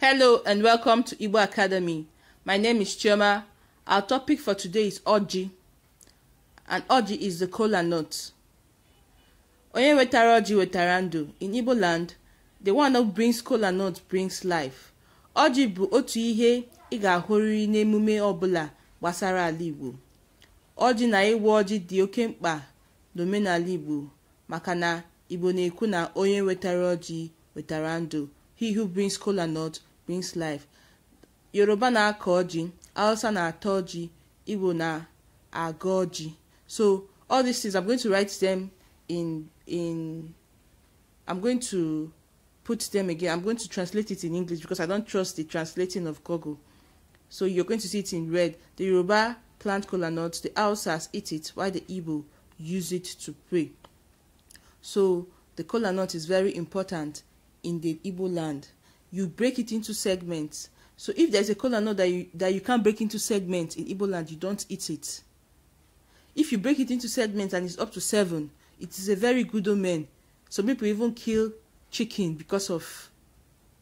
Hello and welcome to Igbo Academy. My name is Chioma. Our topic for today is Oji. And Oji is the kola nut. Onye wetara Oji wetara ndụ. In Igbo land, the one who brings kola nut brings life. Oji bụ otu ihe ị ga-ahụrịrị n'emume ọbụla gbasara ala Igbo. Ọjị na ịwa ọjị dị oke mkpa n'omenala Igbo maka na Igbo na-ekwu na onye wetara ọjị wetara ndụ. He who brings kola nut means life yoruba na-akọ ji hausa na-atọ ji igbo na-agọ ji so all these things i'm going to write them in in i'm going to put them again i'm going to translate it in english because i don't trust the translating of google so you're going to see it in red the yoruba plant kola nuts the Hausas eat it while the igbo use it to pray so the kola nut is very important in the Igbo land you break it into segments. So if there's a kola nut that you, that you can't break into segments in Igbo land, you don't eat it. If you break it into segments and it's up to seven, it is a very good omen. Some people even kill chicken because of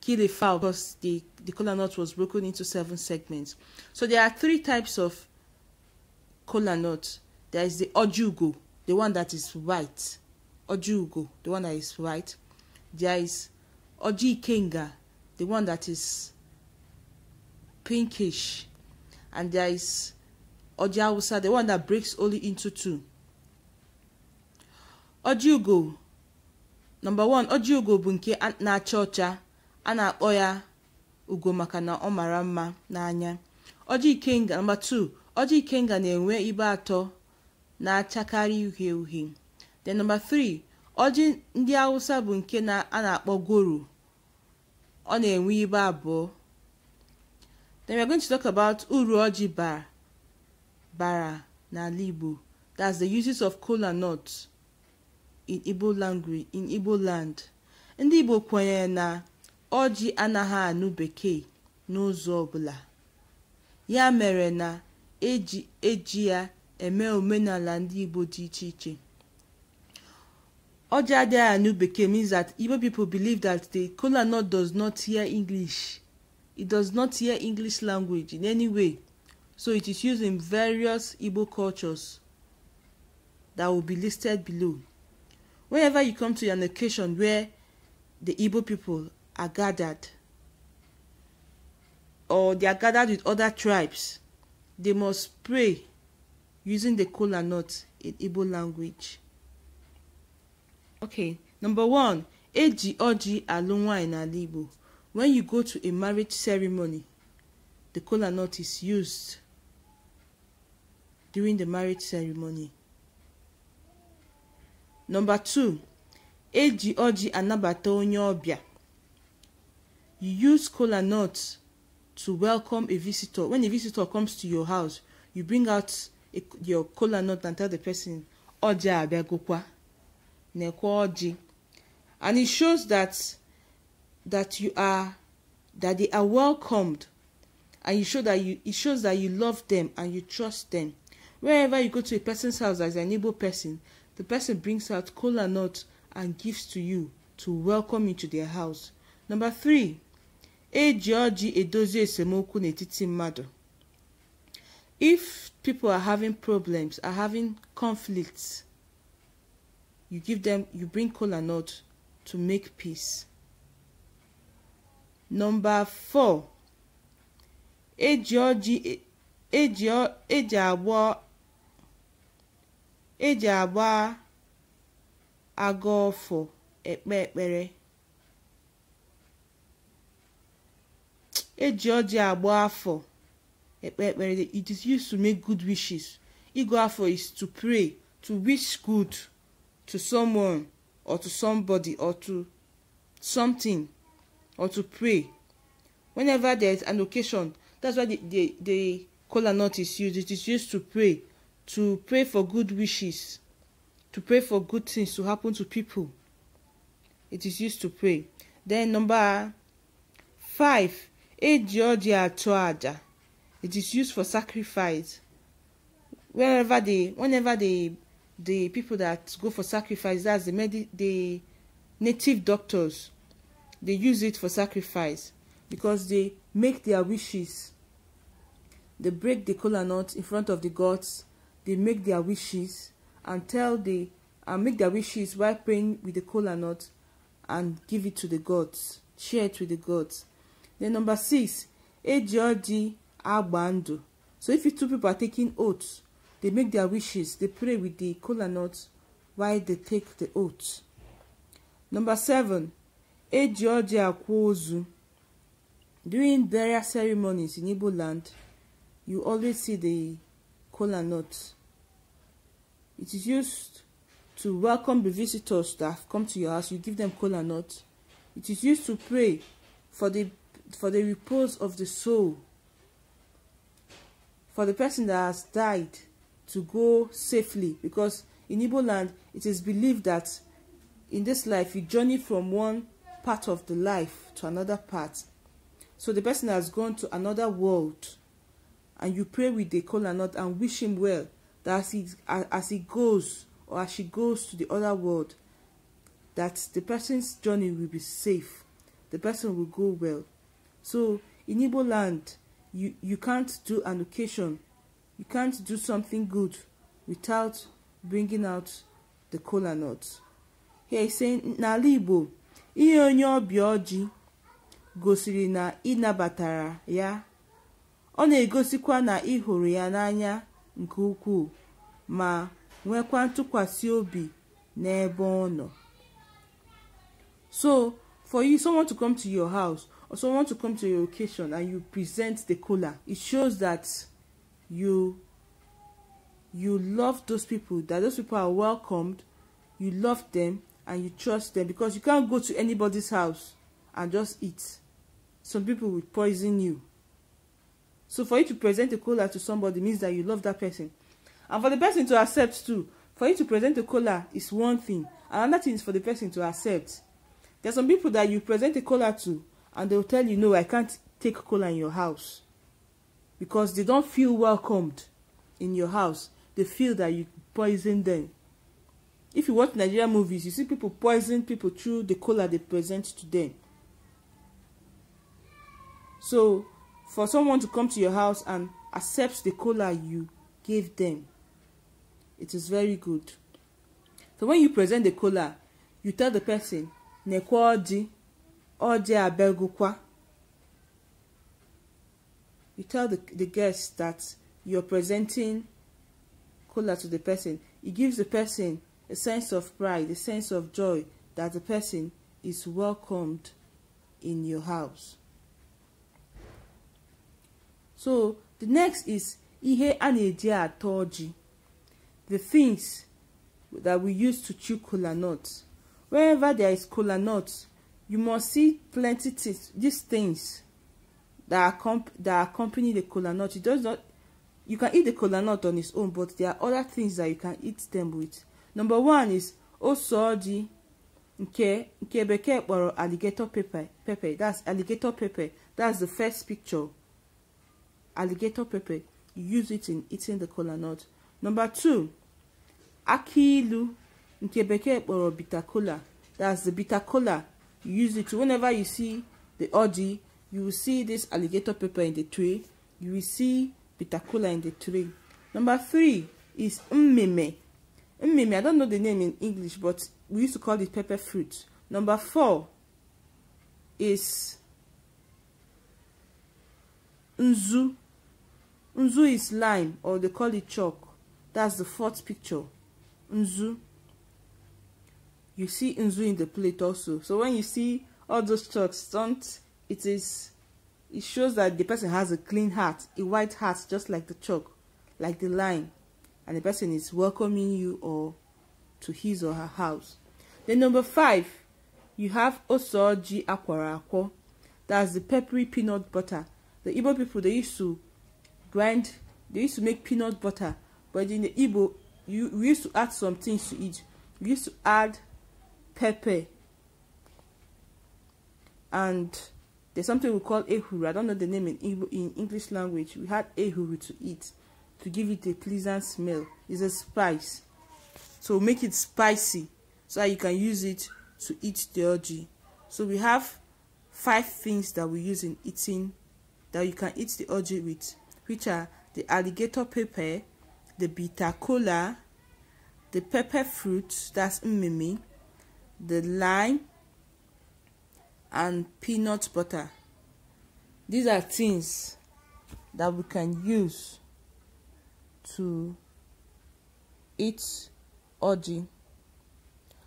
kill a fowl because the, the kola nut was broken into seven segments. So there are three types of kola nut. There is the ojugo, the one that is white. Ojugo, the one that is white. There is ojikenga, the one that is pinkish and there is Oji Awusa, the one that breaks only into two. Oji Ugo, number one, Oji Ugo bụ nke na-acha ọcha a na-akpọ ya ugo maka na ọ mara mma n'anya. Oji Ikenga, number two, Oji Ikenga na-enwe ibe atọ na-achakarị uhie uhie. The number three, ndị Awụsa bụ nke a na-akpọ goro ọ na-enwe ibe abụọ then we're going to talk about uru ọjị bara bara n'ala Igbo that's the uses of kola nut in Igbo language in Igbo land ndị Igbo kwenyere na ọjị anaghị anụ bekee n'ụzọ ọbụla ya mere na eji eji ya eme omenala ndị Igbo dị iche iche Ojaade Anugbeke means that Igbo people believe that the kola nut does not hear English. It does not hear English language in any way. So it is used in various Igbo cultures that will be listed below. Whenever you come to an occasion where the Igbo people are gathered or they are gathered with other tribes, they must pray using the kola nut in Igbo language okay number one eji ọjị alụ nwaanyị n'ala igbo when you go to a marriage ceremony the kola nut is used during the marriage ceremony number two eji ọjị anabata onye ọbịa you use kola nut to welcome a visitor when a visitor comes to your house you bring out a, your kola nut and tell the person ọjị abịagokwa necology and it shows that that you are that they are welcomed and you show that you it shows that you love them and you trust them wherever you go to a person's house as an able person the person brings out kola nut and gifts to you to welcome you to their house number three eji ọjị edozi esemokwu n'etiti mmadụ if people are having problems are having conflicts you give them you bring kola nut to make peace number four eji ọjị e, eji eji agba eji agba aga ọfọ ekpe ekpere eji ọjị agba afọ ekpe ekpere it is used to make good wishes ịgụ afọ is to pray to wish good to someone or to somebody or to something or to pray whenever there is an occasion that's why the the the kola nut is used it is used to pray to pray for good wishes to pray for good things to happen to people it is used to pray then number five eji ọjị atụ it is used for sacrifice whenever they, whenever they the people that go for sacrifice that's the medi the native doctors they use it for sacrifice because they make their wishes they break the kola nut in front of the gods they make their wishes and tell the and make their wishes while praying with the kola nut and give it to the gods share it with the gods then number six eji oji so if you two people are taking oaths They make their wishes. They pray with the cola nut while they take the oath. Number seven, eji ọjị akwa During burial ceremonies in Igbo land, you always see the cola nut. It is used to welcome the visitors that have come to your house. You give them cola nut. It is used to pray for the for the repose of the soul. For the person that has died to go safely because in Igbo land it is believed that in this life you journey from one part of the life to another part. So the person has gone to another world and you pray with the caller not and wish him well that as he, as he goes or as she goes to the other world that the person's journey will be safe. The person will go well. So in Igbo land, you, you can't do an occasion You can't do something good without bringing out the kola nut. Here he's saying, n'ala Igbo, ihe onye ọbịa ọjị gosiri na ị nabatara ya. Ọ na-egosikwa na ị hụrụ ya n'anya nke ukwuu ma nwekwa ntụkwasị obi n'ebe ọ nọ. So, for you, someone to come to your house or someone to come to your location and you present the kola, it shows that you you love those people that those people are welcomed you love them and you trust them because you can't go to anybody's house and just eat some people will poison you so for you to present a cola to somebody means that you love that person and for the person to accept too for you to present a cola is one thing another thing is for the person to accept there are some people that you present a cola to and they will tell you no i can't take cola in your house because they don't feel welcomed in your house. They feel that you poison them. If you watch Nigerian movies, you see people poison people through the cola they present to them. So, for someone to come to your house and accept the cola you gave them, it is very good. So when you present the cola, you tell the person, Nekwa odi, odi abegukwa. you tell the, the guest that you're presenting cola to the person. It gives the person a sense of pride, a sense of joy that the person is welcomed in your house. So the next is ihe a na the things that we use to chew cola nuts. Wherever there is cola nuts, you must see plenty of these things that accomp- that accompany the kola nut It does not you can eat the kola nut on its own but there are other things that you can eat them with number one is ose ọjị nke nke bekee kpọrọ alligator pepper pepper that's alligator pepper that's the first picture alligator pepper you use it in eating the kola nut number two akilu, ilu nke bekee kpọrọ bitter kola that's the bitter kola you use it whenever you see the ọjị you will see this alligator pepper in the tree. you will see pitakula in the tree. number three is mmeme mmeme i don't know the name in english but we used to call it pepper fruit number four is nzu nzu is lime or they call it chalk that's the fourth picture nzu you see nzu in the plate also so when you see all those chalks don't it is it shows that the person has a clean heart a white heart just like the chalk like the line and the person is welcoming you or to his or her house then number five you have osoji akwara that's the peppery peanut butter the igbo people they used to grind they used to make peanut butter but in the igbo you we used to add some things to it we used to add pepper and There's something we call ehuru. I don't know the name in, in English language. We had ehuru to eat to give it a pleasant smell. It's a spice. So make it spicy so that you can use it to eat the orgy. So we have five things that we use in eating that you can eat the orgy with, which are the alligator pepper, the bitter cola, the pepper fruit, that's mimi, the lime, and peanut butter these are things that we can use to eat orgy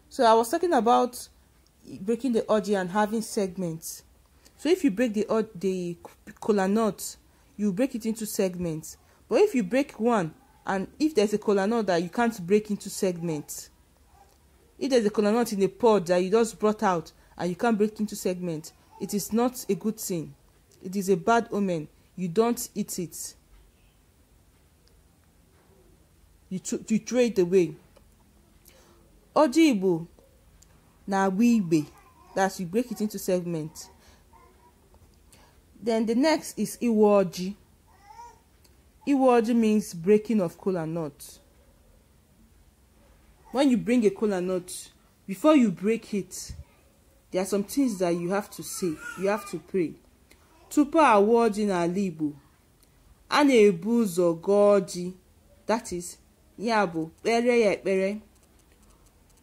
so i was talking about breaking the orgy and having segments so if you break the the cola nut you break it into segments but if you break one and if there's a cola nut that you can't break into segments if there's a cola nut in a pod that you just brought out and you can't break into segments, it is not a good thing. It is a bad omen. You don't eat it. You, you throw it away. Oji na-agba That's you break it into segments. Then the next is iwoji. Iwoji means breaking of cola nut. When you bring a cola nut, before you break it, there are some things that you have to say you have to pray tupu awụọ ji n'ala igbo a na-ebu ụzọ gọọ ji that is ya bụ kpere ya ekpere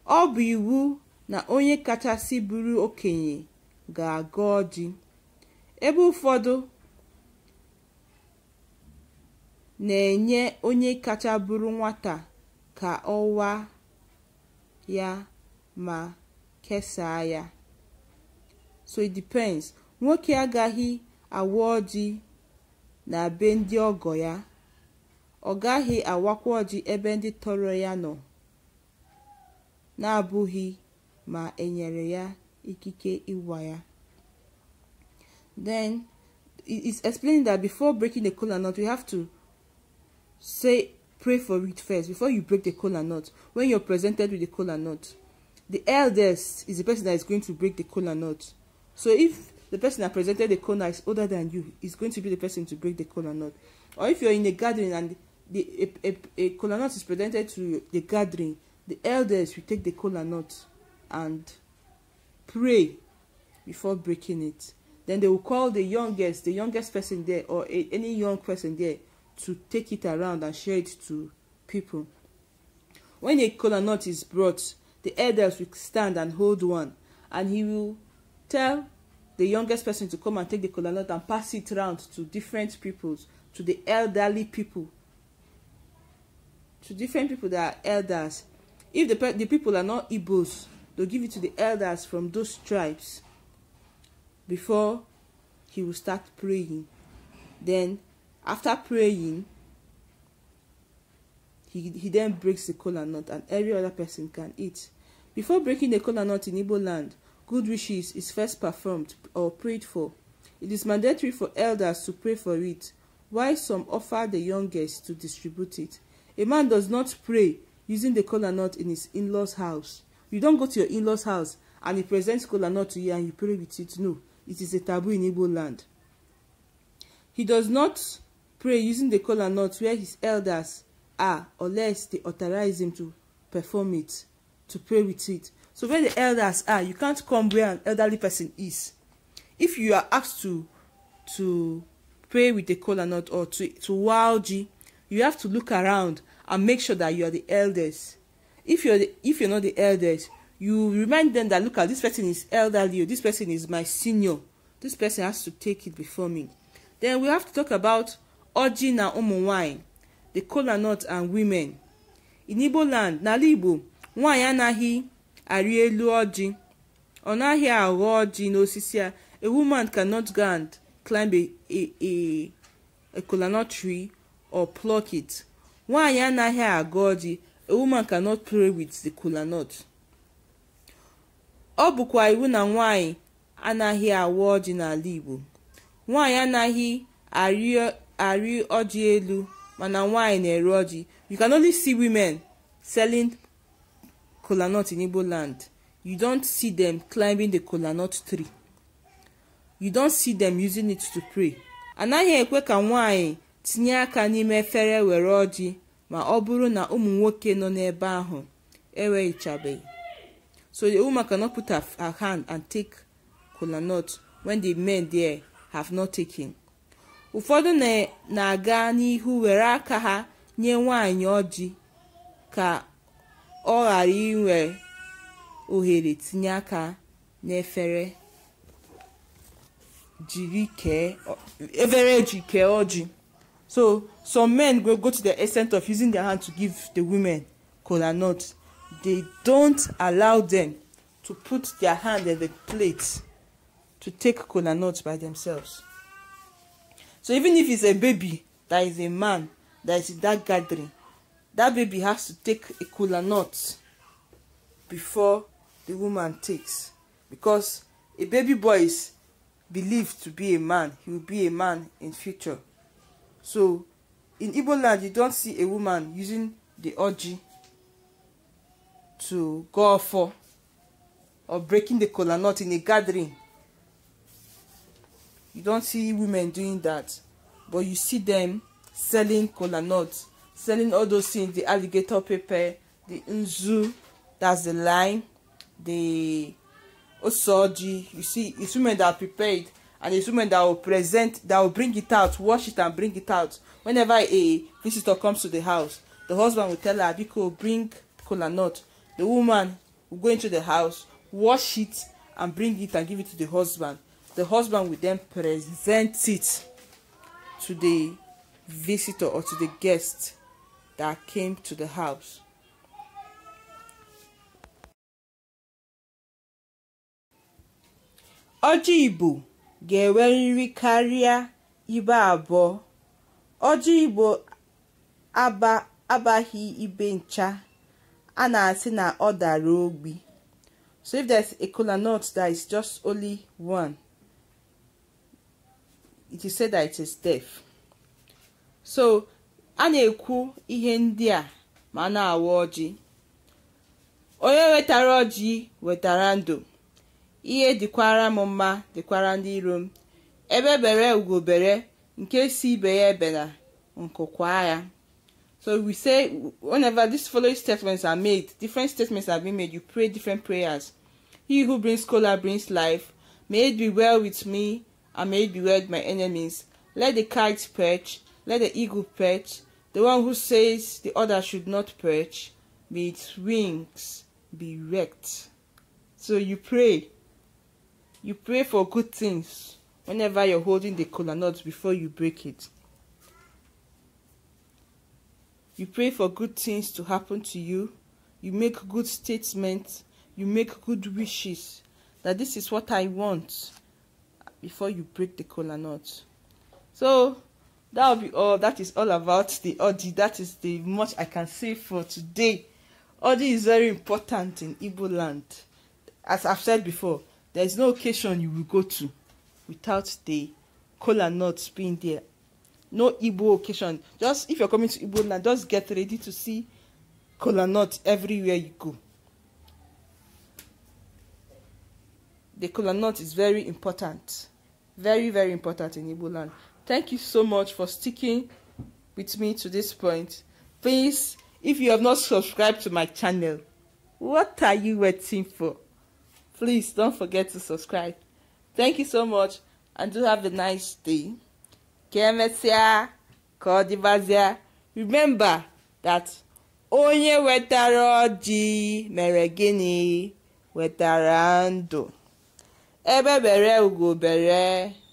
ọ bụ iwu na onye kachasị bụrụ okenye ga-agọọ ji ebe ụfọdụ na-enye onye kacha bụrụ nwata ka ọwa ya ma kesaa ya so it depends nwoke agaghị awụ ọjị na be ndị ọgọ ya ọ gaghị awakwa ọjị ebe ndị tọrọ ya nọ na-abụghị ma enyere ya ikike ịwa ya then it's explaining that before breaking the kola nut we have to say pray for it first before you break the kola nut when you're presented with the kola nut the eldest is the person that is going to break the kola nut So if the person that presented the corner is older than you, he's going to be the person to break the corner nut. Or if you're in a gathering and the, a, a, a corner nut is presented to the gathering, the elders will take the corner nut and pray before breaking it. Then they will call the youngest, the youngest person there or a, any young person there to take it around and share it to people. When a kola nut is brought, the elders will stand and hold one, and he will tell the youngest person to come and take the kola nut and pass it round to different peoples to the elderly people to different people that are elders if the, the people are not igbos they'll give it to the elders from those tribes before he will start praying then after praying he, he then breaks the kola nut and every other person can eat before breaking the kola nut in igbo land Good wishes is first performed or prayed for. It is mandatory for elders to pray for it, while some offer the youngest to distribute it. A man does not pray using the kola nut in his in-laws house. You don't go to your in-laws house and he presents kola nut to you and you pray with it. No, it is a taboo in Igbo land. He does not pray using the kola nut where his elders are unless they authorize him to perform it, to pray with it. So where the elders are, you can't come where an elderly person is. If you are asked to to pray with the kola nut or to, to wow you have to look around and make sure that you are the elders. If you're the, if you're not the elders, you remind them that look at this person is elderly, oh, this person is my senior, this person has to take it before me. Then we have to talk about Oji na ụmụnwaanyị, the kola nut and women. In Igbo land, n'ala Igbo, nwaanyị anaghị arị elu ọjị ọ naghị aghọ ọjị n'osisi a a woman cannot go and climb a, a, a coconut tree or pluck it nwaanyị anaghị agọ ọjị a woman cannot play with the coconut ọ bụkwa iwu na nwaanyị anaghị awa ọjị n'ala Igbo nwaanyị anaghị arị ọjị elu mana nwaanyị na-ere ọjị you can only see women selling kola nut in Igbo land, you don see them climbing the kola nut tree. You don see them using it to pray. Anaghị ekwe ka nwanyị tinye aka n'ime efere were ọjị ma ọ bụrụ na ụmụ nwoke nọ n'ebe ahụ enweghichabeghị. So the woman cannot put her, her hand and take kola nut when the men there have not taken. Ụfọdụ na-aga n'ihu were aka ha nye nwanyị ọjị ka ọ ghara inwe ohere tinye aka n'efere jiri kee efere eji kee ọjị so some men go go to the extent of using their hand to give the women kola nut they don't allow them to put their hand in the plate to take kola nut by themselves so even if it's a baby that is a man that is in that gathering that baby has to take a kola nut before the woman takes because a baby boy is believed to be a man he will be a man in future so in igbo land you don't see a woman using the orji to go for or breaking the kola nut in a gathering you don't see women doing that but you see them selling kola nuts selling all those things the alligator paper the nzu that's the line. the osoji you see it's women that are prepared and it's women that will present that will bring it out wash it and bring it out whenever a visitor comes to the house the husband will tell her biko bring kola nut the woman will go into the house wash it and bring it and give it to the husband the husband will then present it to the visitor or to the guest that came to the house. Ọjị Igbo ga-enwerịrị karịa ibe abụọ. Ọjị Igbo abaghị ibe ncha, a na-asị na ọ dara ogbi. So if there's a kola nut that is just only one, it is said that it is deaf. So a na-ekwu ihe ndị a ma na-awa ọjị onye wetara ọjị wetara ndụ ihe dịkwara m mma dịkwara ndị iro m ebe bere ugobere nke si ibe ya ebena nkụkwa ya So we say whenever these following statements are made, different statements have been made, you pray different prayers. He who brings color brings life. May it be well with me, and may it be well with my enemies. Let the kite perch, let the eagle perch, The one who says the other should not perch, may its wings be wrecked. So you pray. You pray for good things whenever you're holding the cola nut before you break it. You pray for good things to happen to you. You make good statements. You make good wishes that this is what I want before you break the cola nut. So that will be all that is all about the odi that is the much i can say for today odi is very important in igbo land as i've said before there is no occasion you will go to without the kola nut being there no igbo occasion just if you're coming to igbo land just get ready to see kola nut everywhere you go the kola nut is very important very very important in igbo land Thank you so much for sticking with me to this point. Please, if you have not subscribed to my channel, what are you waiting for? Please don't forget to subscribe. Thank you so much and do have a nice day. Kemesia, Kodibazia. Remember that onye wetaroji ọjị wetarando gịnị wetara Ebe bere ugo bere